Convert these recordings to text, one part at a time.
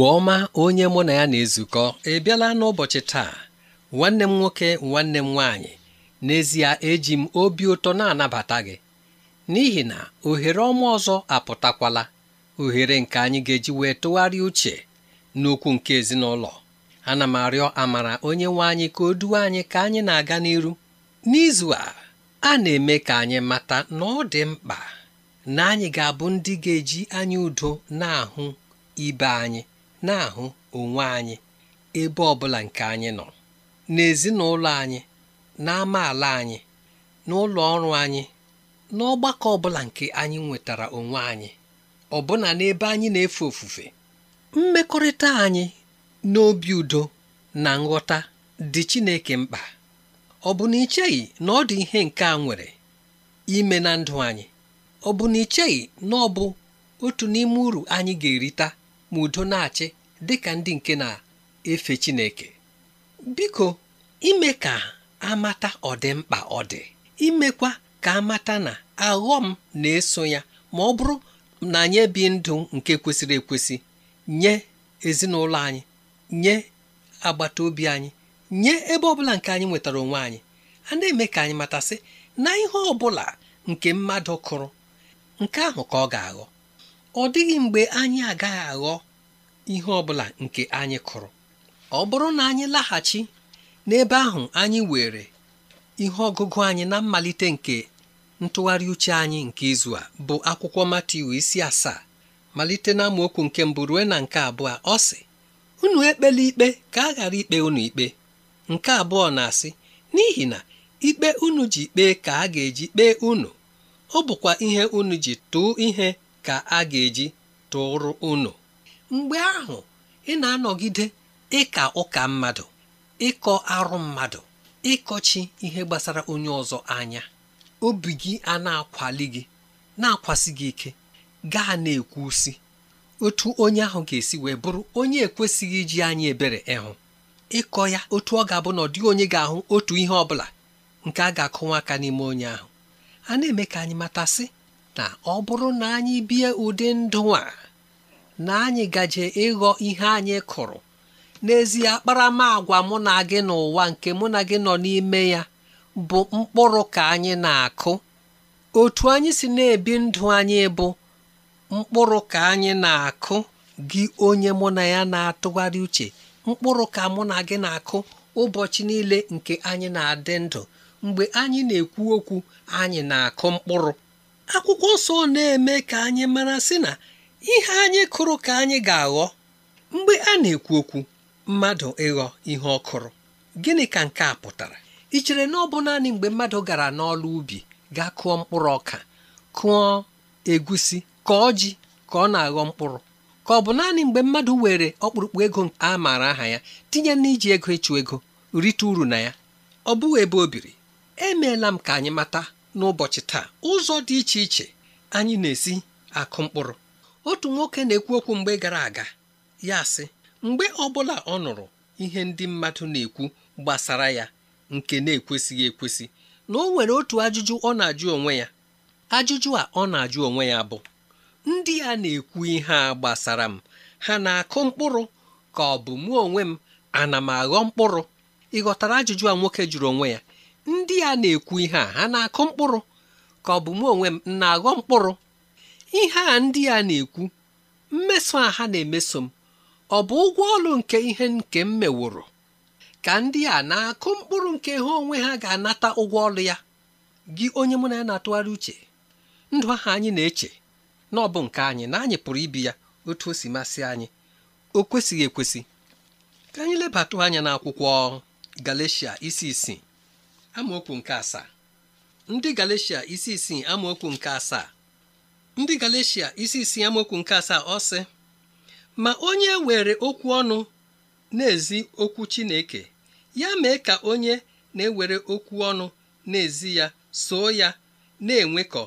igbo ọma onye mụ na ya na-ezukọ ebiela n'ụbọchị taa nwanne m nwoke nwanne m nwaanyị n'ezie eji m obi ụtọ na-anabata gị n'ihi na ohere ọma ọzọ apụtakwala ohere nke anyị ga-eji wee tụgharịa uche n'okwu nke ezinụlọ ana m arịọ amara onye nwe anyị ka o duwe anyị ka anyị na-aga n'iru n'izu a a na-eme ka anyị mata na ọ dị mkpa na anyị ga-abụ ndị ga-eji anya udo na-ahụ ibe anyị na-ahụ onwe anyị ebe ọbụla nke anyị nọ n'ezinụlọ anyị n'amaala anyị n'ụlọ ọrụ anyị n'ọgbakọ ọbụla nke anyị nwetara onwe anyị ọbụna n'ebe anyị na-efe ofufe mmekọrịta anyị n'obi udo na nghọta dị Chineke mkpa ọ bụ na icheghị na ọ dị ihe nke a nwere ime na ndụ anyị ọ bụ na icheghị na ọ bụ otu n'ime uru anyị ga-erita ma udo na-achị dị ka ndị nke na-efe Chineke biko ime ka amata ọdịmkpa ọ dị imekwa ka amata na aghọm na-eso ya ma ọ bụrụ na anyị bi ndụ nke kwesịrị ekwesị nye ezinụlọ anyị nye agbata obi anyị nye ebe ọbụla nke anyị nwetara onwe anyị a na-eme ka anyị matasị na ihe ọ bụla nke mmadụ kụrụ nke ahụ ka ọ ga-aghọ ọ dịghị mgbe anyị agaghị aghọ ihe ọ bụla nke anyị kụrụ ọ bụrụ na anyị laghachi n'ebe ahụ anyị were ihe ọgụgụ anyị na mmalite nke ntụgharị uche anyị nke izu a bụ akwụkwọ Matiu isi asaa malite na amaokwu nke mbụ ruo na nke abụọ ọ sị unu ekpela ikpe ka a ghara ikpe unu ikpe nke abụọ na-asị n'ihi na ikpe unu ji kpee ka a ga-eji kpee unu ọ bụkwa ihe unu ji tụọ ihe ka a ga-eji tụrụ unu mgbe ahụ ị na-anọgide ịka ụka mmadụ ịkọ arụ mmadụ ịkọchi ihe gbasara onye ọzọ anya obi gị a na-akwali gị na-akwasị gị ike gaa na usi. otu onye ahụ ga-esi wee bụrụ onye ekwesịghị iji anyị ebere ịhụ ịkọ ya otu ọ ga-abụ na ọ dịghị onye ga-ahụ otu ihe ọ bụla nke a ga-akụwa aka n'ime onye ahụ a na-eme ka anyị matasị na ọ bụrụ na anyị bie ụdị ndụ a na anyị gaje ịghọ ihe anyị kụrụ n'ezie akparamagwa mụ na gị n'ụwa nke mụ na gị nọ n'ime ya bụ mkpụrụ ka anyị na-akụ otu anyị si na-ebi ndụ anyị bụ mkpụrụ ka anyị na-akụ gị onye mụ na ya na-atụgharị uche mkpụrụ ka mụ na gị na-akụ ụbọchị niile nke anyị na-adị ndụ mgbe anyị na-ekwu okwu anyị na-akụ mkpụrụ akwụkwọ nsọ na-eme ka anyị mara sị na ihe anyị kụrụ ka anyị ga-aghọ mgbe a na-ekwu okwu mmadụ ịghọ ihe ọ kụrụ gịnị ka nke a pụtara ị chere na ọ bụ naanị mgbe mmadụ gara n'ọlụ ubi ga kụọ mkpụrụ ọka kụọ egusi ka ji ka ọ na-aghọ mkpụrụ ka ọ bụ naanị mgbe mmadụ were ọkpụrụkpụ ego a maara aha ya tinye n'iji ego ịchụ ego rite uru na ya ọ bụghị ebe o biri emeela m ka anyị mata n'ụbọchị taa ụzọ dị iche iche anyị na-esi akụ mkpụrụ otu nwoke na-ekwu okwu mgbe gara aga ya sị mgbe ọbụla ọ nụrụ ihe ndị mmadụ na-ekwu gbasara ya nke na-ekwesịghị ekwesị na o nwere otu ajụjụ ọ na-ajụ onwe ya ajụjụ a ọ na-ajụ onwe ya bụ ndị a na-ekwu ihe a gbasara m ha na-akụ mkpụrụ ka ọ bụ mụ onwe m ana m aghọ mkpụrụ ịghọtara ajụjụ a nwoke jụrụ onwe ya ndị a na-ekwu ihe a ha na-akụ mkpụrụ ka ọ bụ m onwe m na-aghọ mkpụrụ ihe a ndị a na-ekwu mmeso a ha na-emeso m ọ bụ ụgwọ ọrụ nke ihe nke m meworo ka ndị a na-akụ mkpụrụ nke ha onwe ha ga-anata ụgwọ ọrụ ya gị onye mụ na ya na-atụgharị uche ndụ ahụ anyị na-eche na ọ bụ nke anyị na anyị pụrụ ibi ya otu o si masị anyị o kwesịghị ekwesị ka anyị lebata anya n'akwụkwọ Galatia isi isii amaokwu nke asaa ndị Galeshia isi isii amaokwu nke asaa ndị isi isii amaokwu nke asaa ọ sị ma onye were okwu ọnụ na-ezi okwu Chineke ya mee ka onye na-ewere okwu ọnụ na-ezi ya soo ya na-enwekọ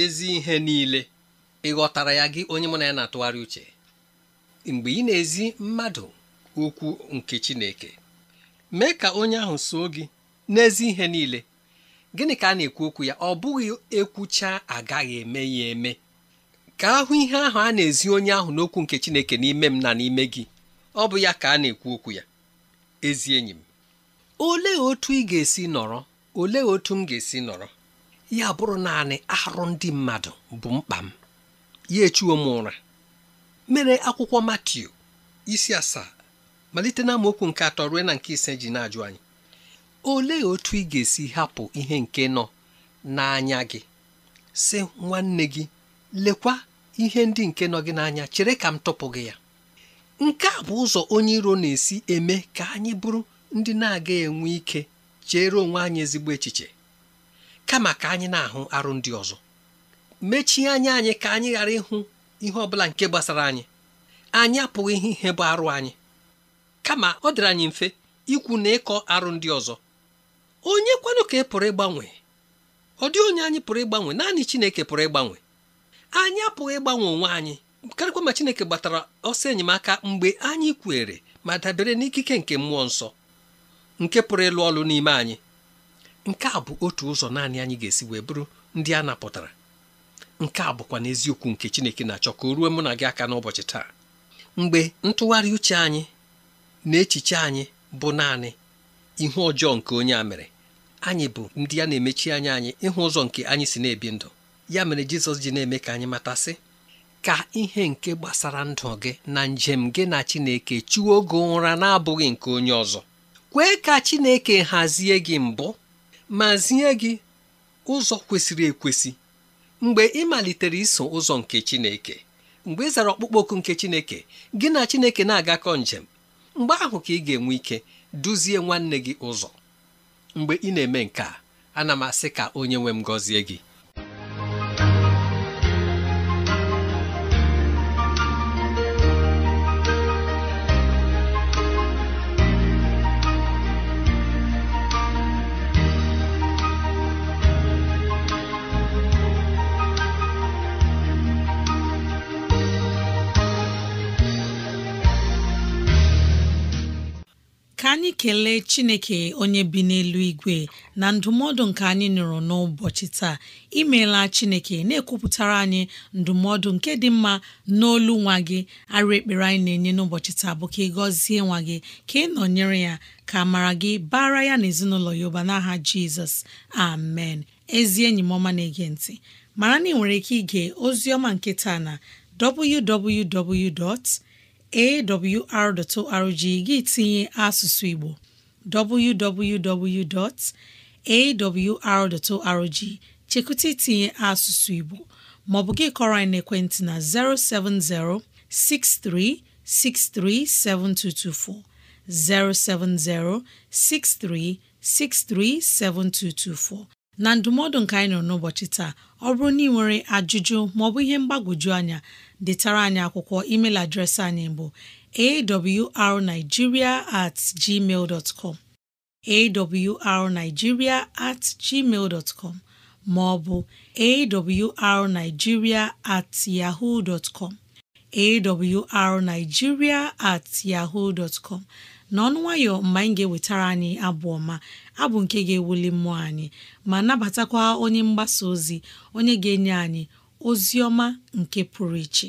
ezi ihe niile ị ghọtara ya gị onye mụ na ya na-atụgharị uche mgbe ị na-ezi mmadụ okwu nke Chineke mee ka onye ahụ soo gị n'ezi ihe niile gịnị ka a na-ekwu okwu ya ọ bụghị ekwucha agaghị eme ya eme ka ahụ ihe ahụ a na-ezi onye ahụ n'okwu nke Chineke n'ime m na n'ime gị ọ bụ ya ka a na-ekwu okwu ya ezi enyi m olee otu ị ga-esi nọrọ olee otu m ga-esi nọrọ ya bụrụ naanị arụ ndị mmadụ bụ mkpa m ya echuo m ụra mere akwụkwọ Matiu isi asaa malite na nke atọ ruo na nke ise ji na-ajụ anyị olee otu ị ga-esi hapụ ihe nke nọ n'anya gị sị nwanne gị lekwa ihe ndị nke nọ gị n'anya chere ka m tụpụ gị ya nke a bụ ụzọ onye iro na-esi eme ka anyị bụrụ ndị na-aga enwe ike chere onwe anyị ezigbo echiche kama ka anyị na-ahụ arụ ndị ọzọ mechie anya anyị ka anyị ghara ịhụ ihe ọ bụla nke gbasara anyị anyị apụghị ihe bụ arụ anyị kama ọ dịrị anyị mfe ikwu na ịkọ arụ ndị ọzọ onye kwanụ ka ị e pụrụ ịgbanwe ọ dị onye anyị pụrụ ịgbanwe naanị chineke pụrụ ịgbanwe anyị apụghị ịgbanwe onwe anyị karịkwa ma chineke gbatara ọsọ enyemaka mgbe anyị kwere ma dabere n'ikike nke mmụọ nsọ nke pụrụ ịlụ ọlụ n'ime anyị nke a bụ otu ụzọ naanị anyị ga-esi wee bụrụ ndị a napụtara nke a bụkwa n'eziokwu nke chineke na-achọ ka o ruo mụ na gị aka n'ụbọchị taa mgbe ntụgharị uche anyị na echiche anyị bụ naanị ihe ọjọọ nke onye a mere anyị bụ ndị ya na-emechi anya anyị ịhụ ụzọ nke anyị si na-ebi ndụ ya mere jizọs ji na-eme ka anyị matasị ka ihe nke gbasara ndụ gị na njem gị na chineke chiwo oge ụra na-abụghị nke onye ọzọ kwee ka chineke hazie gị mbụ ma zie gị ụzọ kwesịrị ekwesị mgbe ị malitere iso ụzọ nke chineke mgbe ị zara ọkpụkpọ oku nke chineke gị na chineke na-agakọ njem mgbe ahụ ka ị ga-enwe ike duzie nwanne gị ụzọ mgbe ị na-eme nke a ana m asị ka onye nwe m gọzie gị ekele chineke onye bi n'elu igwe na ndụmọdụ nke anyị nụrụ n'ụbọchị taa imeela chineke na-ekwupụtara anyị ndụmọdụ nke dị mma n'olu nwa gị arụ ekpere anyị na-enye n'ụbọchị taa bụ ka ị gọzie nwa gị ka ị nọnyere ya ka mara gị bara ya na ezinụlọ ya ụba n'aha jizọs amen ezi enyi m ọma na-ege ntị mara na ị nwere ike ige ozi ọma nke taa na www. awr.org gị tinye asụsụ Igbo www.awr.org chekwụta itinye asụsụ Igbo ma ọ bụ gị kọrọ anyị n'ekwentị na 070 6363 7224 070 6363 7224 na ndụmọdụ nke anyị nọ n'ụbọchị taa ọ bụrụ na ị nwere ajụjụ maọbụ ihe mgbagwoju anya detara anyị akwụkwọ email adreesị anyị bụ awrnigeria at gmail dot com awrnigeria at gmail com ma ọ bụ awrnigeria at yahoo dot com awrnigeria at yahoo dot com n'ọnụ nwayọ mgbe anyị ga-ewetara anyị abụ ọma abụ nke ga-ewuli mmụọ anyị ma nabatakwa onye mgbasa ozi onye ga-enye anyị Ozioma nke pụrụ iche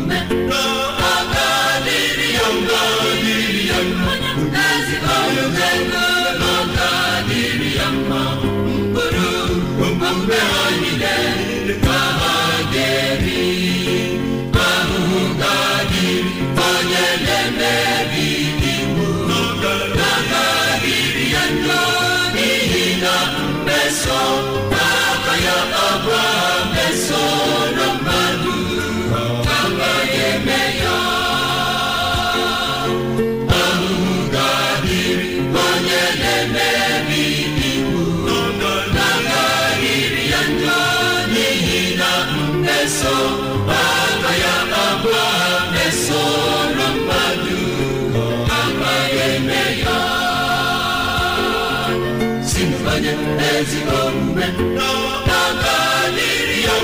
ezigbo omume n'ọgadịrị ya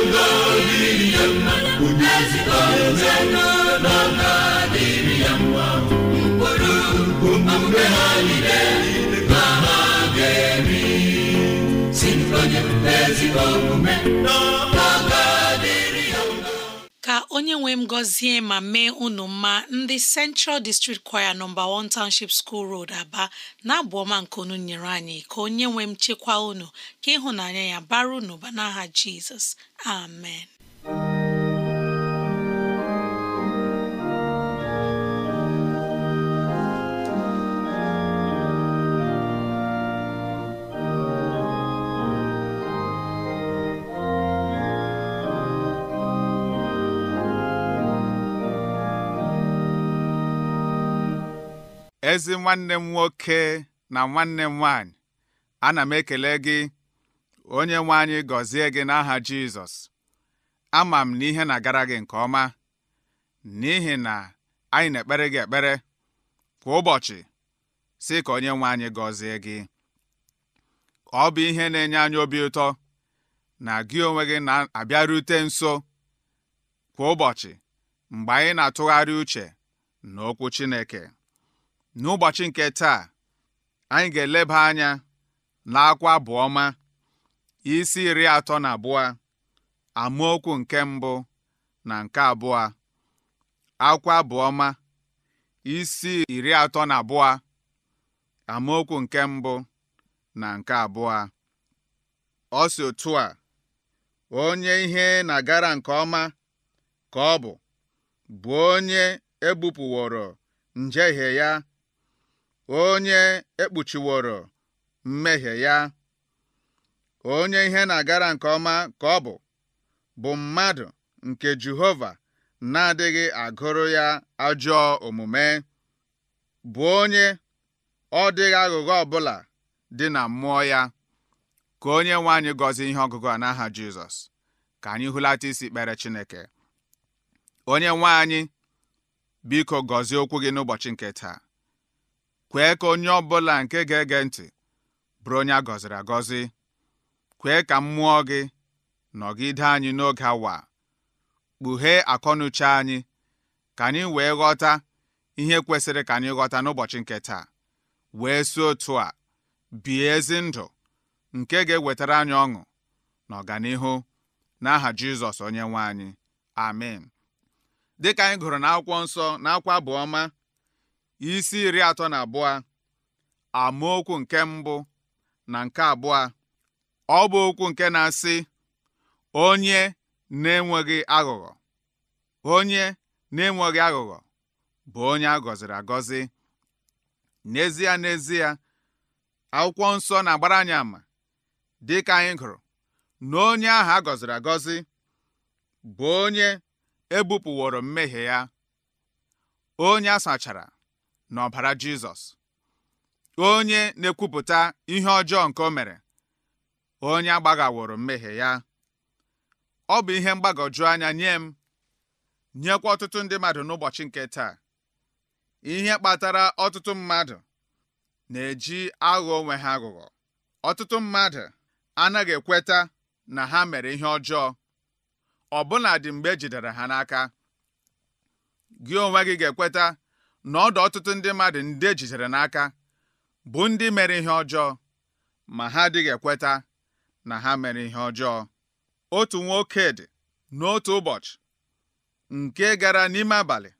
ya mma onye ezigbo ya ka onye nwe m gọzie ma mee unu mma ndị Central District Choir nọmba 1 Township School Road Aba na-abụ ọma nke unu nyere anyị ka onye nwe m chekwaa unu ka ịhụnanya ya bara unu ba n'aha Jizọs amen ezi nwanne m nwoke na nwanne m nwanyị ana m ekele gị onye nwe anyị gọzie gị n'aha Jizọs ama m na ihe na-agara gị nke ọma n'ihi na anyị na-ekpere gị ekpere kwa ụbọchị si ka onye nwe anyị gọzie gị ọ bụ ihe na-enye anyị obi ụtọ na gị onwe gị na-abịarute nso kwa ụbọchị mgbe anyị na-atụgharị uche n'okwu Chineke n'ụbọchị nke taa anyị ga-eleba anya na akwa ọma isi iri atọ na abụọ amaokwu nke mbụ na nke abụọ akwa isi iri atọ na abụọ amaokwu nke mbụ na nke abụọ ọ si otu a onye ihe na-agara nke ọma ka ọ bụ bụ onye ebupụworo njehie ya onye ekpuchiworo mmehie ya, onye ihe na-agara nke ọma ka ọ bụ, bụ mmadụ nke Jehova na-adịghị agụrụ ya ajọọ omume, bụ onye ọ dịghị aghụghọ ọbụla dị na mmụọ ya. Ka onye nwe anyị gọzie ihe ọgụgụ a n'aha Jizọs, ka anyị hụlata isi kpere Chineke. Onye nwe anyị, biko gọzie okwu gị n'ụbọchị nke taa. kwee ka onye ọbụla nke ga-ege ntị bụrụ onye a gọziri agọzi kwee ka mmụọ gị nọgide anyị n'oge awa kpughee akọnuche anyị ka anyị wee ghọta ihe kwesịrị ka anyị ghọta n'ụbọchị nke taa wee si otu a bie ezi ndụ nke ga-ewetara anyị ọṅụ na ọganihu n'aha Jizọs onye nwe anyị amen dịka anyị gụrụ n'akwụkwọ nsọ n'akwa abụọma isi iri atọ na abụọ okwu nke mbụ na nke abụọ ọ bụ okwu nke na-asị onye na-enweghị aghụghọ onye na-enweghị aghụghọ bụ onye a gọziri agọzi n'ezie n'ezie akwụkwọ nsọ na-agbara anyị ama dịka anyị gụrụ na onye ahụ a gọziri agọzi bụ onye ebupụworo mmehie ya onye a sachara n'ọbara Jizọs onye na-ekwupụta ihe ọjọọ nke o mere onye agbaghaworo mmehie ya ọ bụ ihe mgbagoju anya nye m nyekwa ọtụtụ ndị mmadụ n'ụbọchị nke taa ihe kpatara ọtụtụ mmadụ na-eji aghọ onwe ha aghụghọ ọtụtụ mmadụ anaghị ekweta na ha mere ihe ọjọọ ọbụna dị mgbe ejidere ha n'aka gị onwe gị ga-ekweta na ọdụ ọtụtụ ndị mmadụ ndị ejidere n'aka bụ ndị mere ihe ọjọọ ma ha adịghị ekweta na ha mere ihe ọjọọ otu nwoke dị, n'otu ụbọchị nke gara n'ime abalị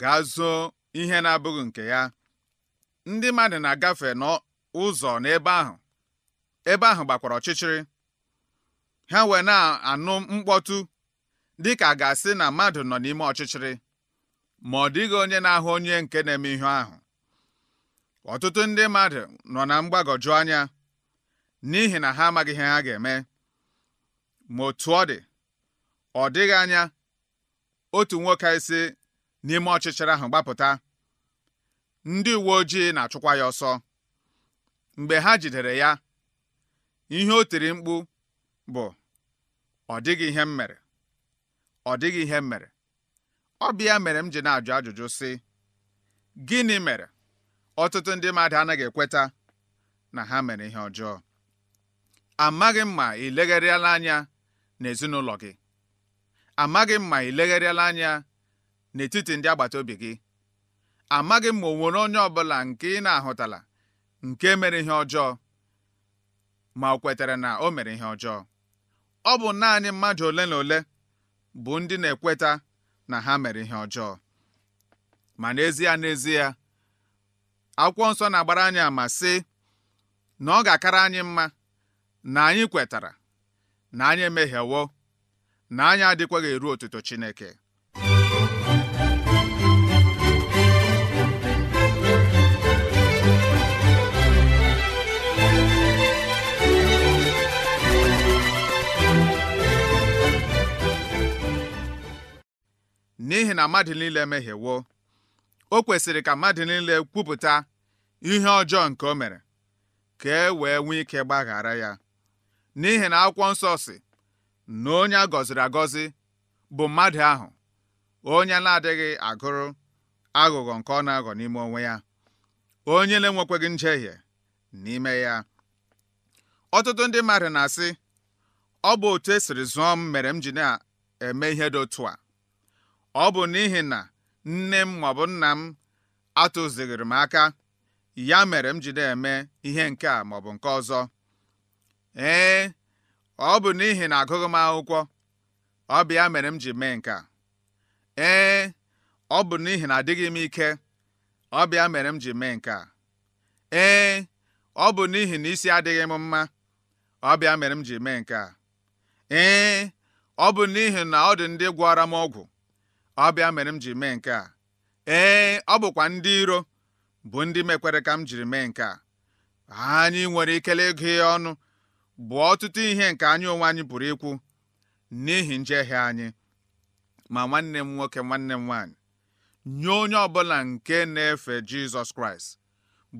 gaa zoo ihe na-abụghị nke ya ndị mmadụ na-agafe n'ụzọ n'ebe ahụ ebe ahụ gbakwara ọchịchịrị ha wee na-anụ mkpọtụ dịka a ga-asị na mmadụ nọ n'ime ọchịchịrị ma ọ dịghị onye na-ahụ onye nke na-eme ihe ahụ ọtụtụ ndị mmadụ nọ na mgbagọju anya n'ihi na ha amaghị ihe ha ga-eme ma otu ọ dị ọ dịghị anya otu nwoke isi n'ime ọchịchịrị ahụ gbapụta ndị uwe ojii na-achụkwa ya ọsọ mgbe ha jidere ya ihe o tiri mkpu bụ ọ dịghị ihe m mere ọ dịghị ihe mere ọ bịa mere m ji na-ajụ ajụjụ sị gịnị mere ọtụtụ ndị mmadụ anaghị ekweta na ha mere ihe ọjọọ amaghị m ma ị legharịala anya n'ezinụlọ gị amaghị m ma ị legharịala anya n'etiti ndị agbata obi gị amaghị m ma o nwere onye ọbụla nke ị na-ahụtala nke mere ihe ọjọọ ma o kwetara na o mere ihe ọjọọ ọ bụ naanị mmadụ ole na ole bụ ndị na-ekweta na ha mere ihe ọjọọ ma n'ezie n'ezie akwụkwọ nsọ na-agbara anyị ama sị na ọ ga-akara anyị mma na anyị kwetara na anyị emehiewo na anyị adịkwaghị eru otuto Chineke n'ihi na mmadụ niile mehiewo o kwesịrị ka mmadụ niile kwupụta ihe ọjọọ nke o mere ka e wee nwee ike gbaghara ya n'ihi na akwụkwọ nsọ si na onye a gọziri agọzi bụ mmadụ ahụ onye na-adịghị agụrụ aghụghọ nke ọ na-aghọ n'ime onwe ya onye na nje njehie n'ime ya ọtụtụ ndị mmadụ na-asị ọ bụ otu esiri zụọ m mere m ji na-eme ihe dị otu a ọ bụ n'ihi na nne m maọbụ nna m atụzighịrị m aka ya mere m ji na eme ihe nke a maọbụ nke ọzọ ee ọ bụ n'ihi na agụghị m akwụkwọ ọ bịa mere m ji mee nke a ee ọ bụ n'ihi na adịghị m ike ọ bụ ya mere m ji mee nke a ee ọ bụ n'ihi na isi adịghị m mma ọ bịa mere m ji mee nke a ee ọ bụ n'ihi na ọ dị ndị gwara m ọgwụ ọ bịa mere m ji mee nke a ee ọ bụkwa ndị iro bụ ndị mekwere ka m jiri mee nke a anyị nwere ikele ịgụ ya ọnụ bụ ọtụtụ ihe nke anyị onwe anyị pụrụ ikwu n'ihi njehie anyị ma nwanne m nwoke nwanne m nwaanyị nye onye ọbụla nke na-efe Jizọs Kraịst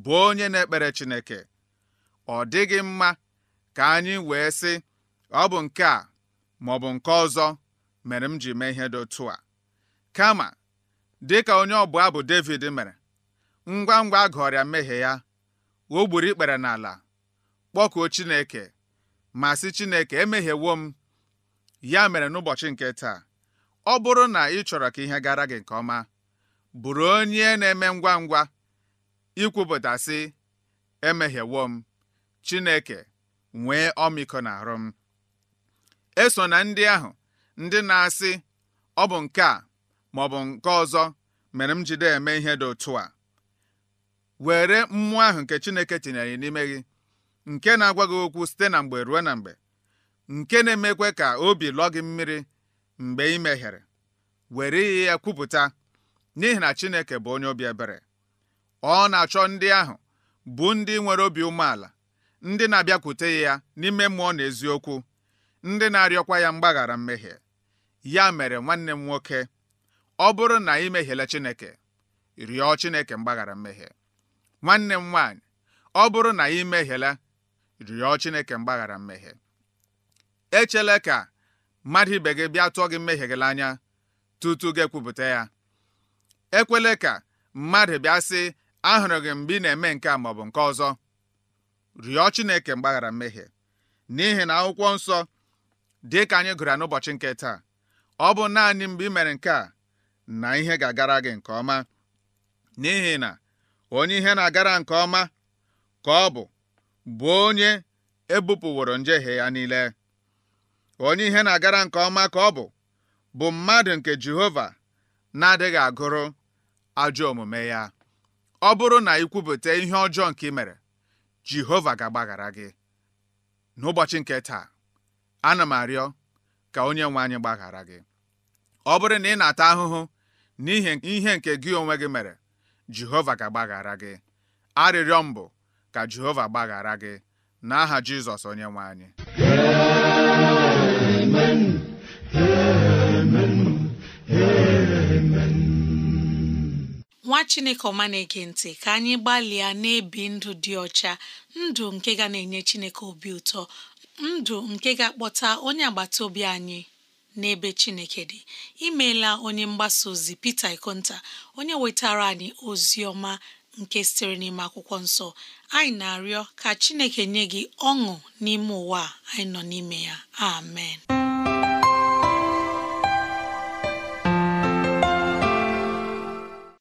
bụ onye na-ekpere Chineke ọ dịghị mma ka anyị wee sị ọ bụ nke a maọbụ nke ọzọ mere m ji mee ihe dị otu a kama dịka onye ọbụ bụ Devid mere ngwa ngwa a gụọrịa mmehie ya o gburu ikpere n'ala kpọkuo Chineke ma sị Chineke emehiewo m ya mere n'ụbọchị nke taa ọ bụrụ na ị chọrọ ka ihe gara gị nke ọma bụrụ onye na-eme ngwa ngwa ikwupụta sị m Chineke nwee ọmịiko arụ m eso na ndị ahụ ndị na-asị ọ bụ nke a bụ nke ọzọ mere m jide eme ihe dị otu a were mmụọ ahụ nke Chineke tinyere n'ime gị nke na-agwa gị okwu site na mgbe ruo na mgbe nke na-emekwe ka obi lụọ gị mmiri mgbe ị mehiere were ihe ya kwupụta n'ihi na Chineke bụ onye obi ebere ọ na-achọ ndị ahụ bụ ndị nwere obi umeala ndị na-abịakwute ya n'ime mmụọ na eziokwu ndị na-arịọkwa ya mgbaghara mmehie ya mere nwanne m nwoke ọ bụrụ na ị mehiela Chineke rịọ Chineke mgbaghara mmehie nwanne m nwaanyị ọ bụrụ na ị mehiela rịọ Chineke mgbaghara mmehie echela ka mmadụ ibe gị bịa tụọ gị mmehie gị n'anya tutu gị ekwupụta ya ekwele ka mmadụ bịa sị ahụrụ gị mgbe ị na-eme nke a maọbụ nke ọzọ rịọ Chineke mgbaghara mmehie n'ihi na akwụkwọ nsọ dị ka anyị gụrụ n'ụbọchị nke taa ọ bụ naanị mgbe ị mere nke a na ihe ga-agara gị nke ọma n'ihi na onye ihe na-agara nke ọma ka ọ bụ bụ onye ebupụworo njehie ya niile onye ihe na-agara nke ọma ka ọ bụ bụ mmadụ nke Jehova na-adịghị agụrụ ajọ omume ya ọ bụrụ na ị kwupụta ihe ọjọọ nke ị mere Jehova ga-agbaghara gị n'ụbọchị nke taa ana m arịọ ka onye nwe anyị gbaghara gị ọ bụrụ na ị na-ata ahụhụ n'ihi ihe nke gị onwe gị mere Jehova ga-agbaghara gị arịrịọ mbụ ka Jehova gbaghara gị n'aha Jizọs onye nwe anyị nwa chineke ọma na-ege ntị ka anyị gbalịa na-ebi ndụ dị ọcha ndụ nke ga na-enye chineke obi ụtọ ndụ nke ga-akpọta onye agbata obi anyị n'ebe chineke dị imeela onye mgbasa ozi Peter Ikonta onye wetara anyị ozi ọma nke sitere n'ime akwụkwọ nsọ anyị na-arịọ ka chineke nye gị ọṅụ n'ime ụwa anyị nọ n'ime ya amen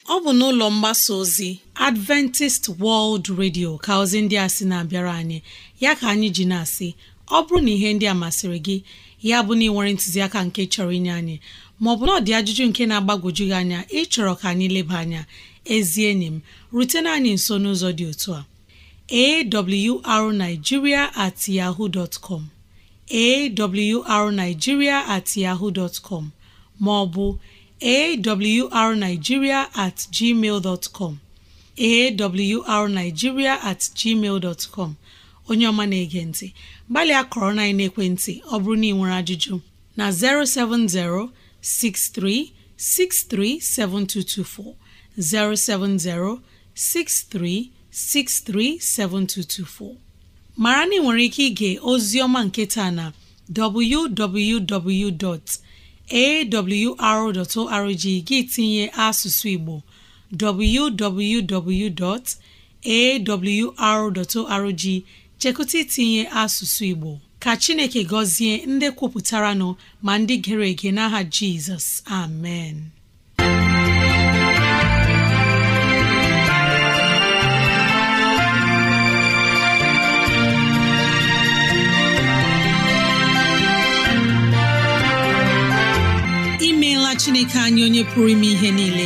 ọ bụ n'ụlọ mgbasa ozi Adventist World Radio ka ozi ndị a sị na-abịara anyị ya ka anyị ji na-asị ọ bụrụ na ihe ndị a masịrị gị ya bụ na ị nwere ntụziaka nke chọrọ inye anyị maọbụ na ọ dị ajụjụ nke na-agbagwoju gị anya ịchọrọ ka anyị leba anya ezi enyi m rutena anyị nso n'ụzọ dị otu a awrnigeria at yahoo dot com at maọbụ arigiria at gmail at gmail onye ọma na-ege ntị gbalịa kọrona enekwentị ọ bụrụ na ị nwere ajụjụ na 070 63 7224 070 633 7224 mara na ị nwere ike ịga ozi ọma nketa na www.awru.org gị tinye asụsụ Igbo www.awru.org. chekụta itinye asụsụ Igbo ka Chineke gọzie ndị kwupụtara nọ ma ndị gere ege n'aha Jizọs amen imeela Chineke anyị onye pụrụ ime ihe niile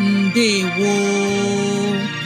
wu